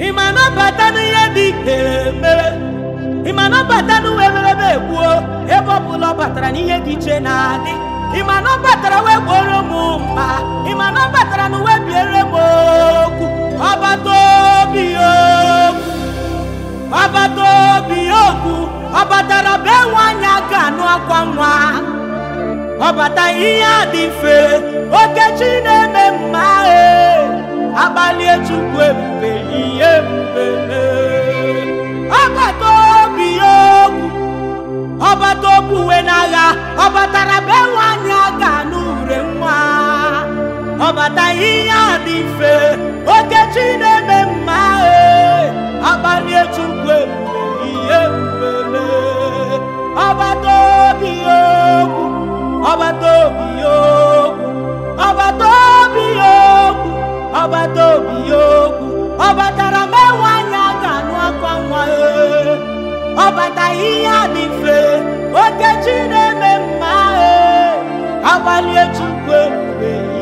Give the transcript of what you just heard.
ị ma nabata n'ihe dị eme? mere ị ma nabata n'uwe merebe egbuo ebe ọbụla ọ batara n'ihe dị iche na-adị ị ma na ọ batara wee gbuoro m mma ị ma na ọ batara na biere m okwu ọbata obi okwu ọbata obi okwu ọ batara be nwa anya ga anụ akwa nwa Ọbata ihe dị mfe ọbata obuwe n'agha ọ batara be nwanyị a ga n'ure nwa ọbata ihe a dị mfe oke chi na-eme mma eh. akpalie chukwu ihe mgbele ọbata obi okwu ọbata obi okwu ọbata obi okwu ọbata obi okwu ọ batara be nwanyị aga ga nwa eh. ọ ihe dị okechi na-eme mma eh, agbalie Chukwu ebube